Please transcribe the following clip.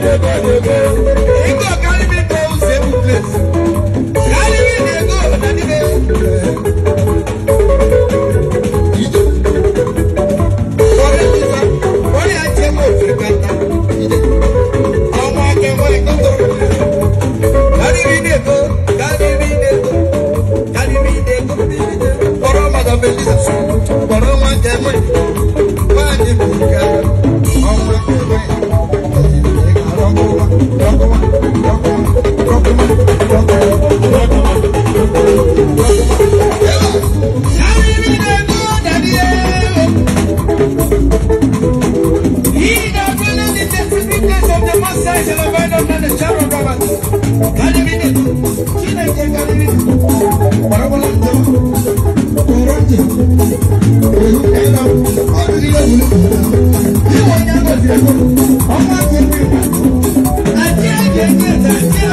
dey go dey go. He go carry me go safe place. Carry me dey go na the way. Ijo. Kọ́lé Musa, kọ́lé àti ẹ̀mọ́ òfin kàtà. Ijo. Ọmọ akẹ́kọ̀ọ́ ẹ̀kọ́ tó rọ̀ lẹ́sẹ̀. dey go, carry me dey go, carry me dey go. Kọ́rọ́ màdàbẹ́lì sọ̀rọ̀, kọ́rọ́ Ọmọ àti ẹgbẹ́ ìgbà,